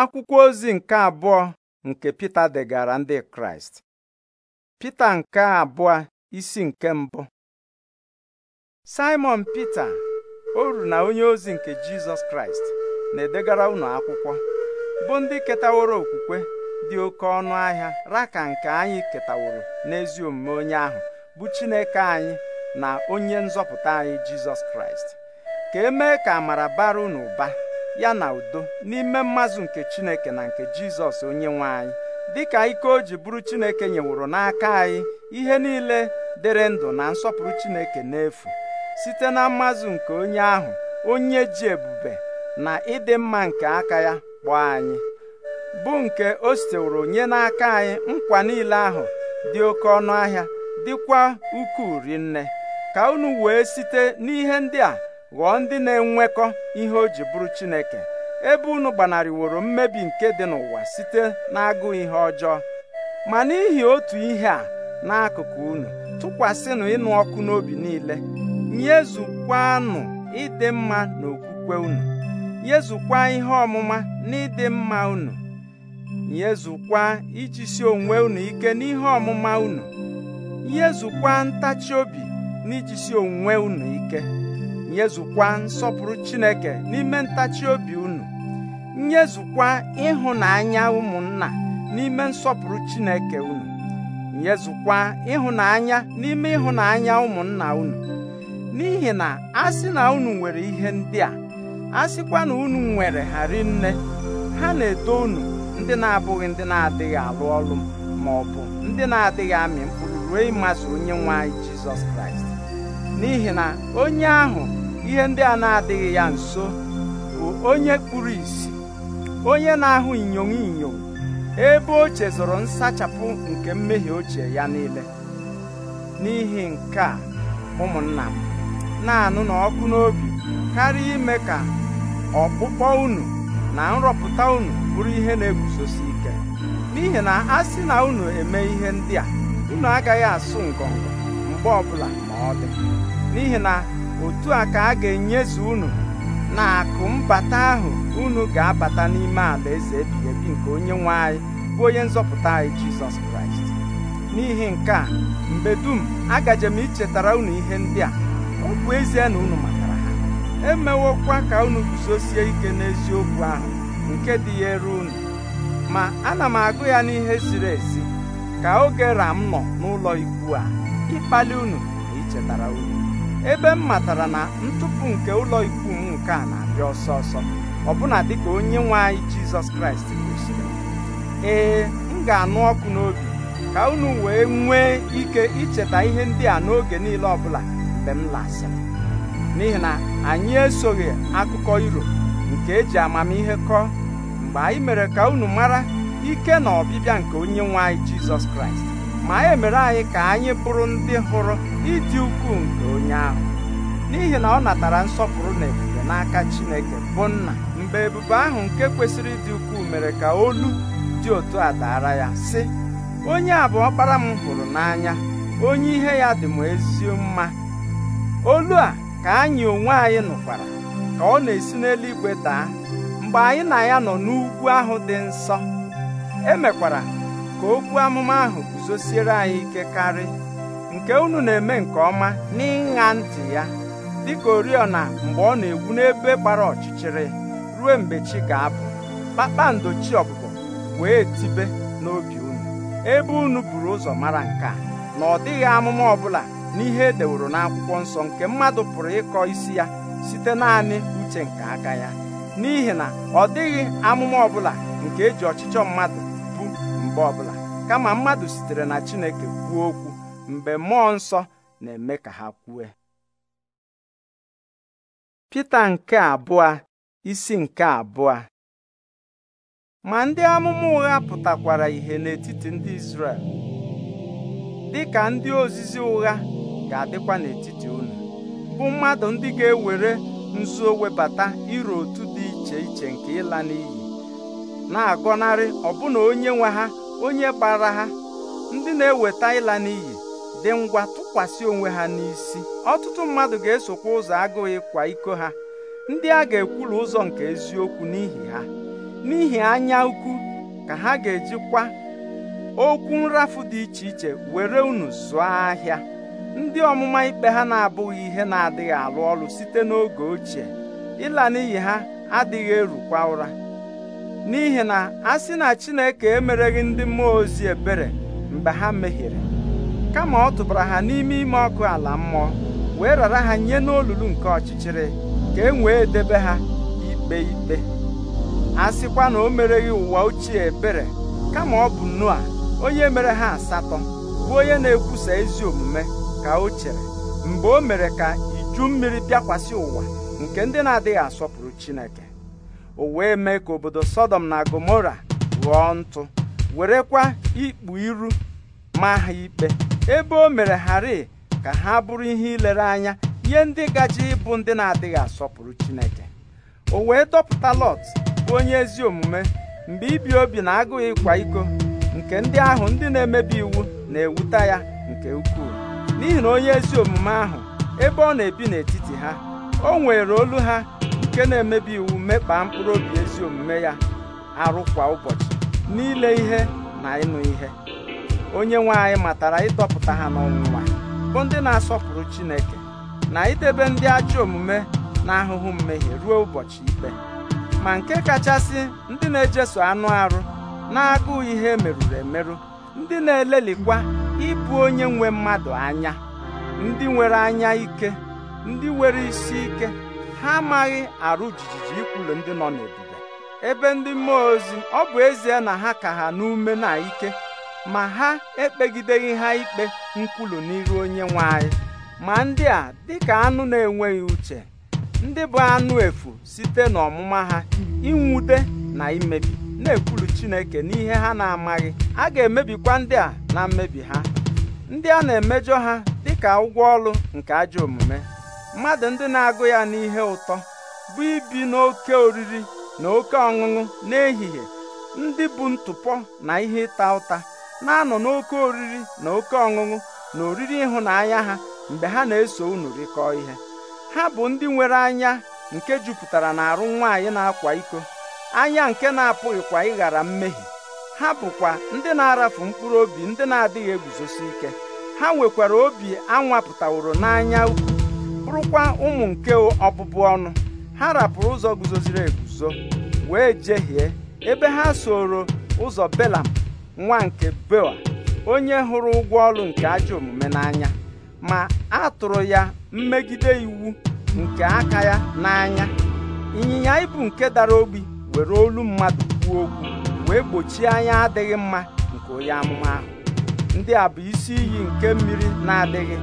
akwụkwọ ozi nke abụọ nke Pita degara ndị Kraịst Pita nke abụọ isi nke mbụ Simon Pita oru na onye ozi nke Jizọs Kraịst na-edegara unu akwụkwọ bụ ndị ketaworo okwukwe dị oke ọnụ ahịa raka nke anyị ketaworo n'ezi omume onye ahụ bụ Chineke anyị na onye nzọpụta anyị Jizọs Kraịst ka e mee ka amara bara unu ụba ya na udo n'ime mmazụ nke Chineke na nke Jizọs onye nwe anyị dịka ike o ji bụrụ Chineke nyeworo n'aka anyị ihe niile dịrị ndụ na nsọpụrụ Chineke n'efu site na mmazụ nke onye ahụ onye ji ebube na ịdị mma nke aka ya kpọọ anyị bụ nke o siteworo nye n'aka anyị nkwa niile ahụ dị oke ọnụ ahịa dịkwa ukwuu rinne ka unu wee site n'ihe ndị a ghọọ ndị na-enwekọ ihe o ji bụrụ Chineke ebe unu gbanarịworo mmebi nke dị n'ụwa site n'agụụ ihe ọjọọ ma n'ihi otu ihe a n'akụkụ unu tụkwasịnụ ịnụ ọkụ n'obi niile nyezukwanụ ịdị mma na okwukwe unu nyezukwa ihe ọmụma na ịdị mma unu nyezukwa ijisi onwe unu ike n'ihe ọmụma unu nyezukwa ntachi obi na ijisi onwe unu ike nyezukwa nsọpụrụ Chineke n'ime ntachi obi unu nyezukwa ịhụnanya ụmụnna n'ime nsọpụrụ Chineke unu nyezukwa ịhụnanya n'ime ịhụnanya ụmụnna unu n'ihi na a na unu nwere ihe ndị a a na unu nwere ha rinne ha na-eto unu ndị na-abụghị ndị na-adịghị alụ ọrụ ma ọ bụ ndị na-adịghị amị mkpụrụ ruo ịmasị onye nwe anyị Jizọs Kraịst n'ihi na onye ahụ ihe ndị a na-adịghị ya nso bụ onye kpuru ìsì onye na-ahụ inyom inyom ebe o chezọrọ nsachapụ nke mmehie ochie ya niile n'ihi nke a ụmụnna m na-anụ n'ọkụ n'obi karịa ime ka ọkpụkpọ unu na nrọpụta unu bụrụ ihe na-eguzosi ike n'ihi na a sị na unu eme ihe ndị a unu agaghị asụ ngọngọ mgbe ọbụla ma ọ dị n'ihi na otu a ka a ga-enyezu unu na akụ mbata ahụ unu ga-abata n'ime ala eze ebighị ebi nke onye nwe anyị bụ onye nzọpụta anyị Jizọs Kraịst n'ihi nke a mgbe dum agaje m ichetara unu ihe ndị a ọ bụ ezie na unu matara ha emewokwa ka unu guzosie ike n'eziokwu ahụ nke dị ya eru unu ma ana m agụ ya n'ihe ziri ezi ka oge ram nọ n'ụlọ ikwu a ịkpali unu na ichetara unu ebe m matara na ntụpụ nke ụlọ ikwu m nke a na-abịa ọsọ ọsọ dị dịka onye nwe anyị jizọs kraịst kwesịrị ee m ga-anụ ọkụ n'obi ka unu wee nwee ike icheta ihe ndị a n'oge niile ọbụla mgbe m lasịrị n'ihi na anyị esoghị akụkọ iro nke eji amamihe kọọ mgbe anyị mere ka unu mara ike na ọbịbịa nke onye nwe anyị jizọs kraịst ma e mere anyị ka anyị bụrụ ndị hụrụ ịdị ukwuu nke onye ahụ n'ihi na ọ natara nsọpụrụ na ebube n'aka Chineke bụ nna mgbe ebube ahụ nke kwesịrị ịdị ukwuu mere ka olu dị otu a daara ya sị onye a bụ ọkpara m hụrụ n'anya onye ihe ya dị m ezi mma olu a ka anyị onwe anyị nụkwara ka ọ na-esi n'eluigwe daa mgbe anyị na ya nọ n'ugwu ahụ dị nsọ emekwara ka okwu amụma ahụ guzosiere anyị ike karị nke unu na-eme nke ọma n'ịṅa ntị ya dịka oriọna mgbe ọ na-egwu n'ebe gbara ọchịchịrị ruo mgbe chi ga-abụ kpakpando chi ọbụbọ wee tibe n'obi unu ebe unu buru ụzọ mara nke a na ọ dịghị amụma bụla n'ihe edeworo n'akwụkwọ nsọ nke mmadụ pụrụ ịkọ isi ya site naanị uche nke aka ya n'ihi na ọ dịghị amụma ọbụla nke eji ọchịchọ mmadụ mgbe ọbụla kama mmadụ sitere na Chineke kwuo okwu mgbe mmụọ nsọ na-eme ka ha kwue Pita nke abụọ isi nke abụọ ma ndị amụma ụgha pụtakwara ihe n'etiti ndị Izrel dị ka ndị ozizi ụgha ga-adịkwa n'etiti unu bụ mmadụ ndị ga-ewere nzuo webata iro otu dị iche iche nke ịla n'iyi na-agọnarị ọbụna onye nwe ha onye gbara ha ndị na-eweta ịla n'ihi dị ngwa tụkwasị onwe ha n'isi ọtụtụ mmadụ ga-esokwa ụzọ agụghịkwa kwa iko ha ndị a ga-ekwulu ụzọ nke eziokwu n'ihi ha n'ihi anya ukwu ka ha ga-ejikwa okwu nrafu dị iche iche were unu zụọ ahịa ndị ọmụma ikpe ha na-abụghị ihe na-adịghị alụ ọrụ site n'oge ochie ịla n'iyi ha adịghị erukwa ụra n'ihi na a sị na Chineke emereghị ndị mmụọ ozi ebere mgbe ha mehiere kama ọ tụbara ha n'ime ime ọkụ ala mmụọ wee rara ha nye n'olulu nke ọchịchịrị ka e wee debe ha ikpe ikpe a sịkwa na o mereghị ụwa ochie ebere kama ọ bụ Noa onye mere ha asatọ bụ onye na-ekwusa ezi omume ka o chere mgbe o mere ka iju mmiri bịakwasị ụwa nke ndị na-adịghị asọpụrụ Chineke o wee mee ka obodo sodom na gomora ghọọ ntụ werekwa ikpu iru ma ha ikpe ebe o mere hari ka ha bụrụ ihe ilere anya nye ndị gaji ịbụ ndị na-adịghị asọpụrụ chineke o wee dọpụta lọt bụ onye ezi omume mgbe ibi obi na agụghị ịkwa iko nke ndị ahụ ndị na-emebi iwu na-ewuta ya nke ukwuu n'ihi na onye ezi omume ahụ ebe ọ na-ebi n'etiti ha o nwere olu ha nke na-emebi iwu mekpaa mkpụrụ obi ezi omume ya arụ kwa ụbọchị n'ile ihe na ịnụ ihe onye nwe anyị matara ịdọpụta ha n'ọnwụnwa bụ ndị na-asọpụrụ Chineke na idebe ndị ajọ omume na ahụhụ mmehie ruo ụbọchị ikpe ma nke kachasị ndị na-ejeso anụ arụ na-agụụ ihe merụrụ emerụ ndị na-elelikwa ịbụ onye nwe mmadụ anya ndị nwere anya ike ndị nwere isi ike ha amaghị arụ jijiji ikwulu ndị nọ n'ebube ebe ndị mmụọ ozi ọ bụ ezie na ha ka ha n'ume na ike ma ha ekpegideghị ha ikpe nkwulu n'iru onye nwe anyị ma ndị a dịka anụ na-enweghị uche ndị bụ anụ efu site n'ọmụma ha inwute na imebi na-ekwulu Chineke n'ihe ha na-amaghị a ga-emebikwa ndị a na mmebi ha ndị a na-emejọ ha dịka ụgwọ ọlụ nke ajọ omume mmadụ ndị na-agụ ya n'ihe ụtọ bụ ibi n'oke oriri na oke ọṅụṅụ n'ehihie ndị bụ ntụpọ na ihe ịta ụta na-anọ n'oke oriri na oke ọṅụṅụ na oriri ịhụnanya ha mgbe ha na-eso unu rịkọọ ihe ha bụ ndị nwere anya nke jupụtara arụ nwaanyị na-akwa iko anya nke na-apụghịkwa ịghara mmehie ha bụkwa ndị na-arafu mkpụrụ obi ndị na-adịghị eguzosi ike ha nwekwara obi anwapụtaworo n'anya ukwu bụrụkwa ụmụ nke ọbụbụ ọnụ ha rapụrụ ụzọ guzoziri eguzo wee jehie ebe ha soro ụzọ belam nwa nke bewa onye hụrụ ụgwọ ọrụ nke ajọ omume n'anya ma a tụrụ ya mmegide iwu nke aka ya n'anya ịnyịnya ibu nke dara obi were olu mmadụ kwuo okwu wee gbochie anya adịghị mma nke onye amụma ahụ ndị a bụ isi iyi nke mmiri na-adịghị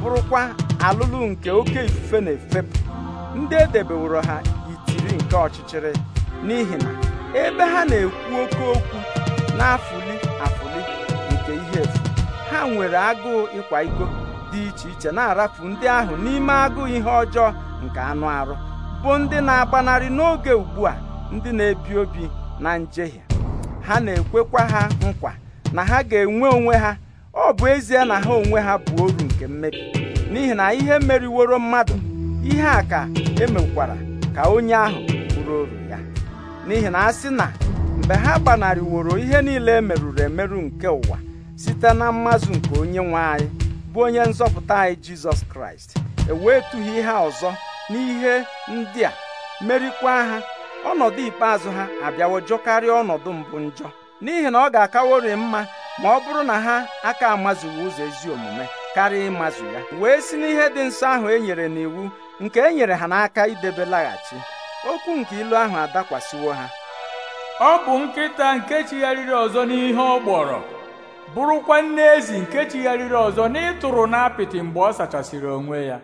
bụrụkwa alụlụ nke oke ifufe na-efepụ ndị edebeworo ha itiri nke ọchịchịrị n'ihi na ebe ha na-ekwu oke okwu na-afụli afụli nke ihe efu ha nwere agụụ ịkwa iko dị iche iche na-arafu ndị ahụ n'ime agụụ ihe ọjọọ nke anụ arụ bụ ndị na-agbanarị n'oge ugbu a ndị na-ebi obi na njehie ha na-ekwekwa ha nkwa na ha ga-enwe onwe ha ọ bụ ezie na ha onwe ha bụ oru nke mmebi n'ihi na ihe meriworo mmadụ ihe a ka emekwara ka onye ahụ bụrụ oru ya n'ihi na a sị na mgbe ha gbanarịworo ihe niile e merụrụ emerụ nke ụwa site na mmazụ nke onye nwe anyị bụ onye nzọpụta anyị jizọs kraịst ewetughị ha ọzọ n'ihe ndị a merikwa ha ọnọdụ ikpeazụ ha abịawo jọkarịa ọnọdụ mbụ njọ n'ihi na ọ ga-akawori mma ma ọ bụrụ na ha aka amazighị ụzọ ezi omume karịa ịmazụ ya wee si n'ihe dị nsọ ahụ e nyere n'iwu nke e nyere ha n'aka idebe laghachi okwu nke ilu ahụ adakwasịwo ha ọ bụ nkịta nke chigharịrị ọzọ n'ihe ọ gbọrọ bụrụkwa nne ezi nke chigharịrị ọzọ n'ịtụrụ n'apịtị mgbe ọ sachasịrị onwe ya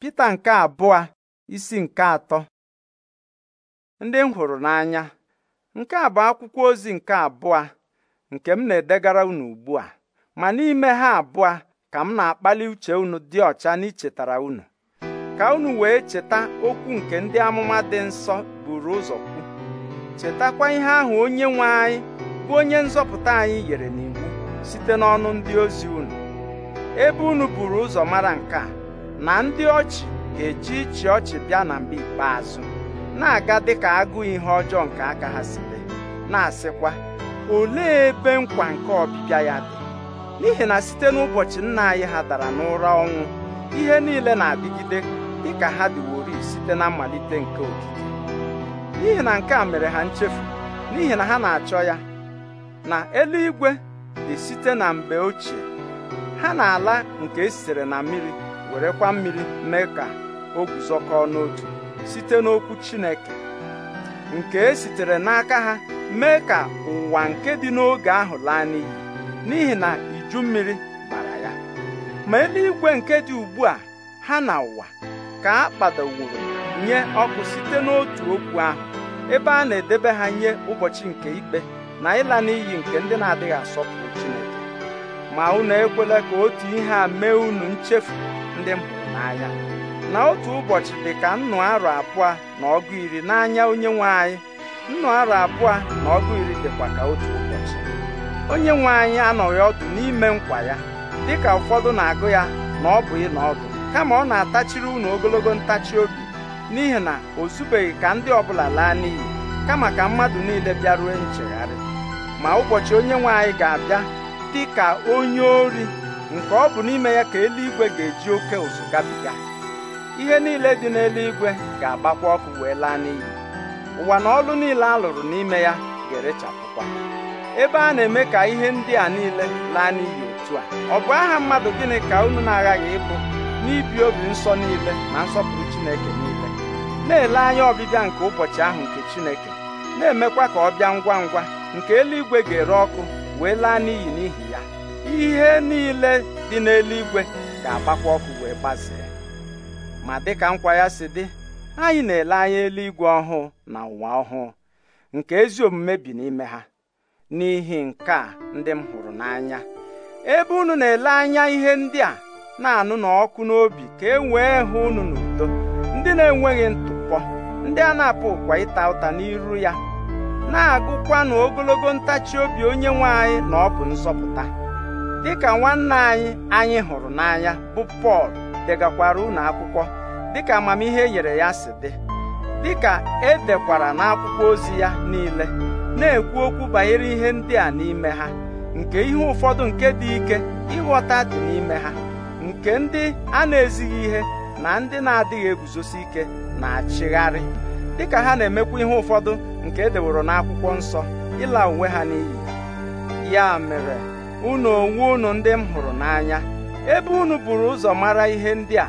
Pita nke abụọ isi nke atọ ndị m hụrụ n'anya nke a bụ akwụkwọ ozi nke abụọ nke m na-edegara unu ugbu a ma n'ime ha abụọ ka m na-akpali uche unu dị ọcha n'ichetara unu ka unu wee cheta okwu nke ndị amụma dị nsọ buru ụzọ kwu chetakwa ihe ahụ onye nwe anyị bụ onye nzọpụta anyị yere n'iwu site n'ọnụ ndị ozi unu ebe unu buru ụzọ mara nke a na ndị ọchị ga-eji ịchị ọchị bịa na mgbe ikpeazụ na-aga dịka agụụ ihe ọjọọ nke aka ha site na-asịkwa olee ebe nkwa nke ọbịbịa ya dị n'ihi na site n'ụbọchị nna anyị ha dara n'ụra ọnwụ ihe niile na-adịgide ka ha dịwori site na mmalite nke okike n'ihi na nke a mere ha nchefu n'ihi na ha na-achọ ya na eluigwe dị site na mgbe ochie ha na-ala nke esitere na mmiri werekwa mmiri mee ka o guzokọọ n'otu site n'okwu Chineke nke esitere n'aka ha mee ka ụwa nke dị n'oge ahụ laa n'iyi n'ihi na uju mmiri bara ya ma eluigwe nke dị ugbu a ha na ụwa ka a kpadoworo nye ọkụ site n'otu okwu ahụ ebe a na-edebe ha nye ụbọchị nke ikpe na ịla n'iyi nke ndị na-adịghị asọpụrụ Chineke ma unu ekwela ka otu ihe a mee unu nchefu ndị m hụrụ n'anya na otu ụbọchị dị ka nnụ arọ abụọ na ọgụ iri n'anya onye nwe anyị nnụ arọ abụọ na ọgụ iri dịkwa ka otu ụbọchị onye nwe anyị anọghị ọdụ n'ime nkwa ya dịka ụfọdụ na-agụ ya na ọ bụ ịnọ ọdụ kama ọ na-atachiri unu ogologo ntachi obi n'ihi na o zubeghị ka ndị ọbụla laa n'iyi kama ka mmadụ niile bịaruo nchegharị ma ụbọchị onye nwe anyị ga-abịa dị ka onye ori nke ọ bụ n'ime ya ka eluigwe ga-eji oke ụzụ gabiga ihe niile dị n'eluigwe ga-agbakwa ọkụ wee laa n'iyi ụwa na ọlụ niile a lụrụ n'ime ya ga-erechapụkwa ebe a na-eme ka ihe ndị a niile laa n'iyi otu a ọ bụ aha mmadụ gịnị ka unu na-aghaghị ịbụ n'ibi obi nsọ niile na nsọpụrụ Chineke niile na-ele anya ọbịbịa nke ụbọchị ahụ nke Chineke na-emekwa ka ọ bịa ngwa ngwa nke eluigwe ga-ere ọkụ wee laa n'iyi n'ihi ya ihe niile dị n'eluigwe ga-agbakwa ọkụ wee gbazee ma dịka nkwa ya si dị anyị na-ele anya eluigwe ọhụụ na ụwa ọhụụ nke ezi omume bi n'ime ha n'ihi nke a ndị m hụrụ n'anya ebe unu na-ele anya ihe ndị a na-anụ n'ọkụ n'obi ka e wee hụ unu n'udo ndị na-enweghị ntụpọ ndị a na-apụkwa apụ ịta ụta n'iru ya na-agụkwa na ogologo ntachi obi onye nwe anyị na ọ bụ nzọpụta dịka nwanne anyị anyị hụrụ n'anya bụ Pọl degakwara unu akwụkwọ dịka amamihe e nyere ya si dị dịka edekwara n'akwụkwọ ozi ya niile na-ekwu okwu banyere ihe ndị a n'ime ha nke ihe ụfọdụ nke dị ike ịghọta dị n'ime ha nke ndị a na-ezighị ihe na ndị na-adịghị eguzosi ike na-achịgharị dịka ha na-emekwa ihe ụfọdụ nke edeworo n'akwụkwọ nsọ ịla onwe ha n'iyi ya mere unu onwe unu ndị m hụrụ n'anya ebe unu buru ụzọ mara ihe ndị a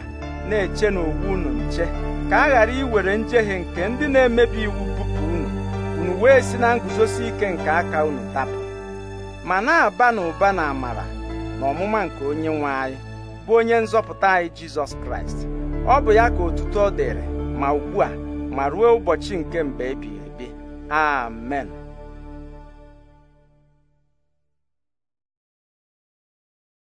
na-eche owu unu nche ka a ghara iwere njehie nke ndị na-emebi iwu unu wee si na nguzosi ike nke aka unu tapụ ma na-aba n'ụba na amara na ọmụma nke onye nwe anyị bụ onye nzọpụta anyị jizọs kraịst ọ bụ ya ka otuto dịrị ma ugbu a ma ruo ụbọchị nke mgbe ebighị ebi amen